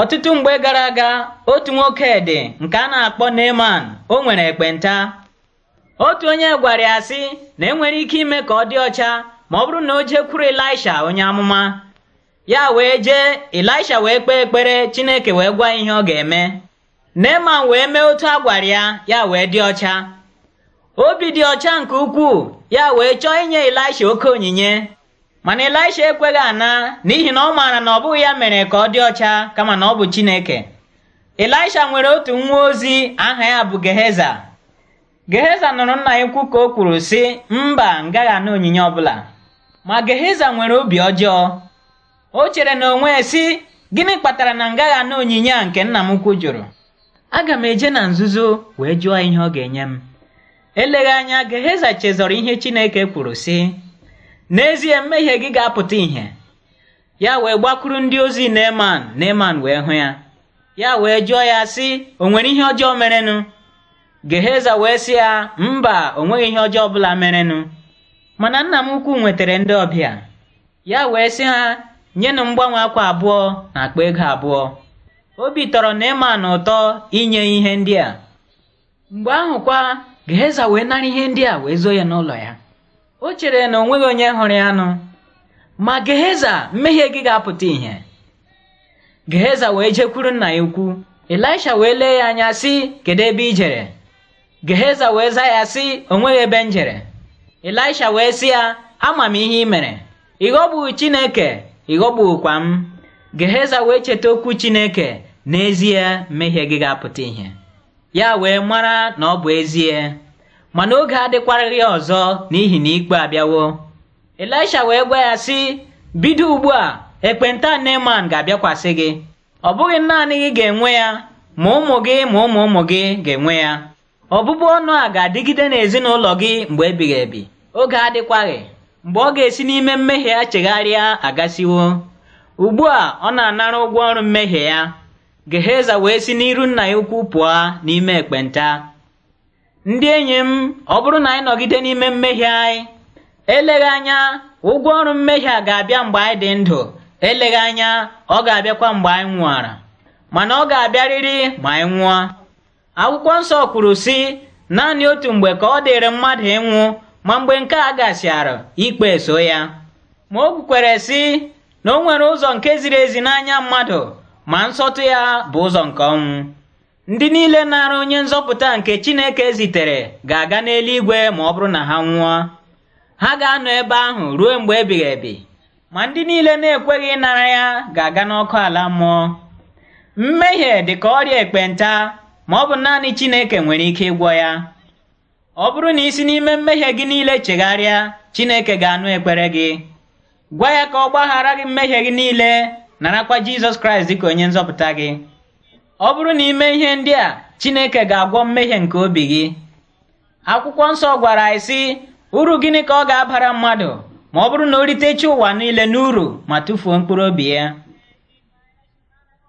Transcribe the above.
Ọtụtụ mgbe gara aga otu nwoke dị nke a na-akpọ Neman o nwere ekpenta otu onye gwara ya sị na enwere ike ime ka ọ dị ọcha ma ọ bụrụ na o jekwuru Ịlaisha onye amụma ya wee jee Ịlaisha wee kpee ekpere Chineke wee gwa ihe ọ ga-eme Neman wee mee otu a gwara ya ya wee dị ọcha obi dị ọcha nke ukwuu ya wee chọọ inye Ịlaisha oke onyinye mana Elisha ekweghị ana n'ihi na ọ maara na ọ bụghị ya mere ka ọ dị ọcha kama na ọ bụ Chineke Elisha nwere otu nwa ozi aha ya bụ Geheza Geheza nụrụ nna ya ukwu ka o kwuru sị mba ngaghị onyinye ọbụla ma Geheza nwere obi ọjọọ o chere na onwe sị gịnị kpatara na ngaghị onyinye a nke nna m ukwu jụrụ aga m eje na nzuzo wee jụọ ihe ọ ga-enye m eleghị anya Geheza chezọrọ ihe Chineke kwuru sị n'ezie mmehie gị ga-apụta ìhè ya wee gbakwuru ndị ozi Neeman Neeman wee hụ ya ya wee jụọ ya sị o nwere ihe ọjọọ merenụ Geheza wee sị ya mba o nweghị ihe ọjọọ ọbụla merenụ mana nna m ukwu nwetara ndị ọbịa ya wee sị ha nyenụ mgbanwe akwa abụọ na akpa ego abụọ obi tọrọ Neeman ụtọ inye ihe ndị a mgbe ahụ kwa Geheza wee nara ihe ndị a wee zoo ya n'ụlọ ya o chere na onweghị onye hụrụ anụ. ma Geheza mmehie gị ga-apụta ihe. Geheza wee jekwuru nna ya ukwu Elisha wee lee ya anya sị kedu ebe i jere Geheza wee zaa ya sị onweghị ebe m jere Elisha wee sị ya ama m ihe ị mere Ịghọgbu Chineke ị m Geheza wee cheta okwu Chineke n'ezie mmehie gị ga-apụta ihe. ya wee mara na ọ bụ ezie mana oge adịkwaraghị ya ọzọ n'ihi na ikpe abịawo elisha wee gwa ya sị bido ugbu a ekpenta neman ga-abịakwasị gị ọ bụghị naanị gị ga-enwe ya ma ụmụ gị ma ụmụ ụmụ gị ga-enwe ya ọbụbụ ọnụ a ga-adịgide n'ezinụlọ gị mgbe ebighị ebi oge adịkwaghị mgbe ọ ga-esi n'ime mmehie ya chegharịa agasiwo ugbu a ọ na-anara ụgwọ ọrụ mmehie ya geheza wee si n'iru nna ya ukwu pụọ n'ime ekpenta ndị enyi m ọ bụrụ na anyị nọgide n'ime mmehie anyị eleghị anya ụgwọ ọrụ mmehie a ga-abịa mgbe anyị dị ndụ eleghị anya ọ ga-abịakwa mgbe anyị nwụọra mana ọ ga-abịarịrị ma anyị nwụọ akwụkwọ nsọ kwuru sị naanị otu mgbe ka ọ dịrị mmadụ ịnwụ ma mgbe nke a gasịara ikpe so ya ma o kwukwere sị na o nwere ụzọ nke ziri ezi n'anya mmadụ ma nsọtụ ya bụ ụzọ nke ọnwụ Ndị niile na-arụ onye nzọpụta nke Chineke zitere ga-aga n'eluigwe ma ọ bụrụ na ha nwụọ. Ha ga-anọ ebe ahụ ruo mgbe ebighị ebi, ma ndị niile na-ekweghị ịnara ya ga-aga n'ọkụ ala mmụọ. Mmehie dị ka ọrịa ekpenta ma ọ bụ naanị Chineke nwere ike ịgwọ ya. Ọ bụrụ na isi n'ime mmehie gị niile chegharịa, Chineke ga-anụ ekpere gị. Gwa ya ka ọ gbaghara gị mmehie gị niile, narakwa Jizọs Kraịst dị ka onye nzọpụta gị. ọ bụrụ na ime ihe ndị a Chineke ga-agwọ mmehie nke obi gị akwụkwọ nsọ gwara anyị sị uru gịnị ka ọ ga-abara mmadụ ma ọ bụrụ na o ritecha ụwa niile n'uru ma tụfuo mkpụrụ obi ya